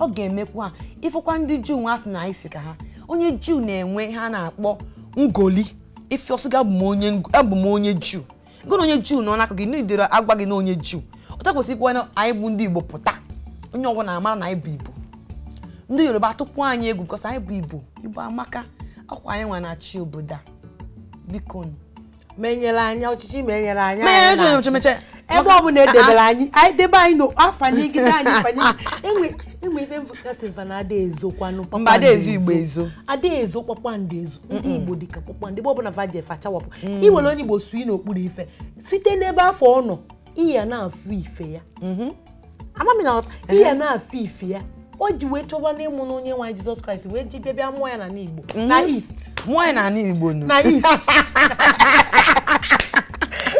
ọ ga-emekwa ịfụkwa ndị juu nwa asị na anyị ka ha onye juu na-enwe ha na-akpọ ngoli ife ọsụga abụ m onye juu gụna onye juu nọ n'aka gị n'idere agwa gị na onye juu ọta kwesịrịkwa na anyị bụ ndị igbo pụta onye ọbụla amara na anyị bụ igbo ndị yoruba atụkwa anyị egwu because anyị bụ igbo igbo amaka akwa anyị nwa na-achị obodo a biko menyere anya ọchịchị menyere anya e ebe ọ bụla edebere anyị anyị debe anyị n'afọ anyị gị anyị [laughs] enwe enwe ife mvụkasị mfa na adaezokwanụ mba adaezo igbo ezo adaezo kpakpando ezo ndị igbo dịka kpakpando igbo ọbụla faje fachawapụ mm. iwere onye igbo sui n'okpuru ife site n'ebe afọ ọ nọ iya na-afụ ife ya mm-hmm. amamina iya na-afụ ife ya o ji wee chọba n'ịmụ na onye nwa jizọs kraịst wee jidebịa mmụọ ya na mm-hmm. n'igbo na east mmụọ ya na n'igbo na east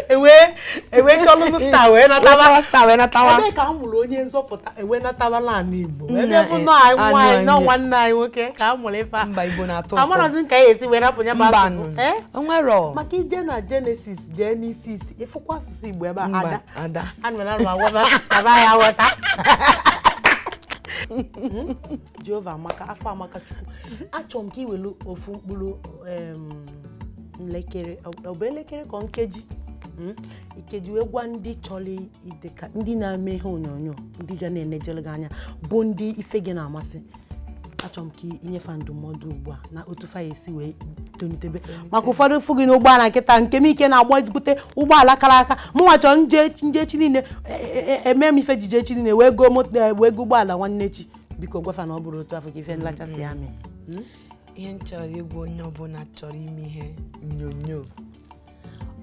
ewe chọlụ [laughs] sta wee natawa sta wee natawa ebe ka amụrụ onye nzọpụta ewe natawa n'ala Igbo ebe bụ e, nọ anyị nwaanyị nọ nwanne anyị nwoke ka amụrụ ịfa ife mba Igbo na-atọ ụtọ amarazi ka anyị e esi wee rapụ ya bụ asụsụ eh? maka ije na Genesis jee n'isi isi ịfụkwa asụsụ Igbo ebe ada ada anaghị aghọta Jehova amaka afọ amaka Chukwu achọrọ m ka iwelu ofu mkpụrụ elekere ọ bụ elekere ka nkeji Hmm? ikedu egwa ndị chọrọ ideka ndị na-eme ihe onyonyo ndị ga na-enejere gị anya bụ ndị ife gị na-amasị achọrọ m ka inyefe ndụmọdụ ugbu a na otu fa esi wee tolitebe maka ụfọdụ ụfụ gị n'ụgbọala nkịta nke m ike na-agba ezigbote ụgbọala kara aka mụnwa nje echi niile eme e, e, e, m ife ji echi niile wee go wee go ụgbọala nwanne chi biko gwafa na ọ bụrụ otu afọ ka ife nlachasị mm-hmm. amị hmm? ihe nchọrọ chọrọ onye ọbụla chọrọ ime ihe onyonyo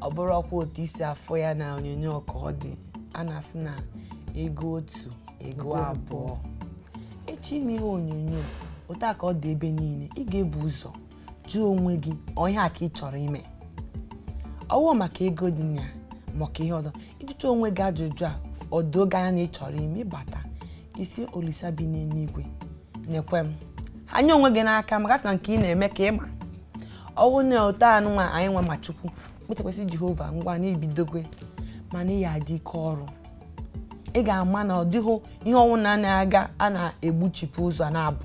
ọ bụrụ ọkwa otu isi afọ ya na onyonyo ka ọ dị a na-asị na ego otu ego abụọ echi ime ihe onyonyo otu a ka ọ dị ebe niile ị ga-ebu ụzọ jụọ onwe gị onye a ka ị chọrọ ime ọwụ maka ego dị na maka ihe ọzọ ịjụcha onwe gị ajụjụ a ọdoge anya na ị chọrọ ime ịbata isi olisa bi n'eluigwe na m anya onwe gị n'aka maka na nke ị na-eme ka ịma ọwụ na ote anụnwa anyị nwe ma chukwu kpụchakwasị jehova ngwa na ibidogwe mana ị ya adị ike ọrụ ị ga-ama na ọ dịghị ihe ọnwụ na na-aga a na-egbuchipụ ụzọ na-abụ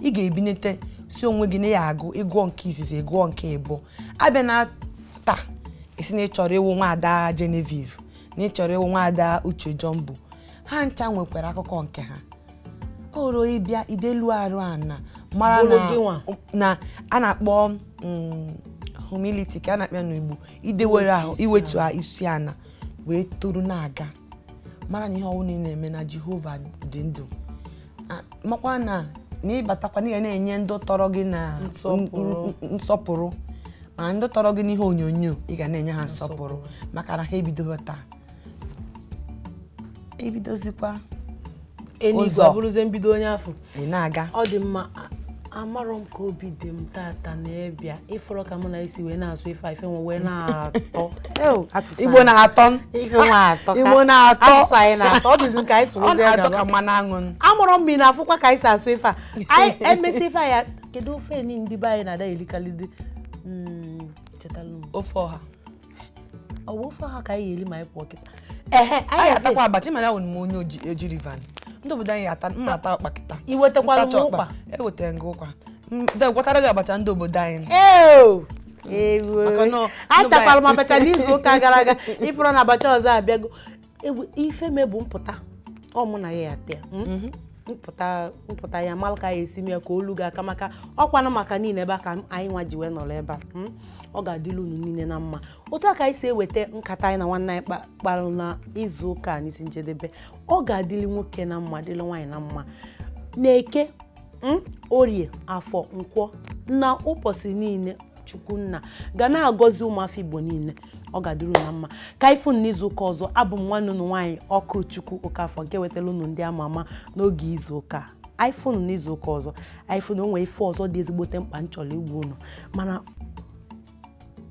ị ga-ebinete si onwe gị na ya agụ ịgụọ nke izizi gụọ nke ịbụ abịa na ta esi na ịchọrọ ịwụ nwaada Genevieve na ịchọrọ ịwụ nwaada Uche Jumbo ha ncha nwekwara akụkọ nke ha oro ịbịa idelu arụ ana mara na a na-akpọ mm, humility ka a na-akpịa n'Igbo idewere ahụ iwetu ha isi ana wee toro na-aga mara na ihe ọwụ niile na-eme na Jehova dị ndụ makwa na na ịbatakwa na ị na-enye ndụ tọrọ gị na nsọpụrụ Ma ndị tọrọ gị na ihe onyonyo ị ga na-enye ha nsọpụrụ maka na ha ebidoghị taa ebidozikwa ụzọ na-aga amarọ m ka obi dị m tata na-ebịa ịfọrọ ka mụ na isi wee na-asụ ife ife nwe wee na-atọ [laughs] igbo na-atọ igbo na-atọ ka. na-atọ. anyị ya mma amụrụ m na afụkwa ka anyị si asụ ife a [laughs] emesi ife ya kedu ofe ni ndị be anyị na-ada elikalidi hmm, ofe ọha ọ bụ ofe ọha ka anyị ga-eli ma anyị pụọ kịta ehe anyị atakwa abacha mana ahụ m onye ojiri van ndị obodo anyị ata m na-ata ọkpa kịta iwetakwara m ụkpa ewetara gị ụkwa gwatara gị abacha ndị obodo anyị mm. atakwara m abacha n'izu ụka gara aga ifụrụ na abacha ọzọ abịago ifeme bụ mpụta ọ mụ na ya ya ata mm? mhm. mpụta ya malụ ka ya esi m ya ka olu ga aka maka ọkwana maka niile ebe a ka anyị nwa ji wee nọrọ ebe a hmm? ọ ga-adịla unu niile na mma otu a ka anyị si eweta nkata anyị na nwanne anyị kparụ na izu ụka n'isi njedebe ọ ga-adịli nwoke na mma dịlị nwaanyị na mma na-eke hmm? orie afọ nkwọ na ụbọchị niile chukwunna ga na-agọzi ụmụafọ igbo niile ọ ga-adịrị na mma ka ifụ n'izuụka ọzọ abụ m nwanne unu nwaanyị ọkụ chukwu okafọ nke wetara unu ndị ama ama n'oge izuụka iphone n'izuụka ọzọ o onwe ife ọzọ dị ezigbote mkpa nchọrọ igbu unu mana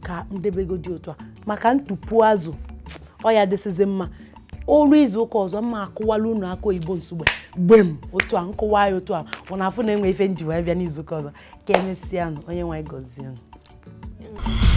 ka ndebego dị otu a maka ntụpụ azụ ọ ya dịsizi mma olu izuụka ọzọ mma akụwala unu aka oyibo nsogbe gbem otu a nkụwa ya otu a ọ na-afụ na enwe ife nji wee n'izu ụka ọzọ ka emesịa nụ onye nwe gọzie